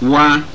wa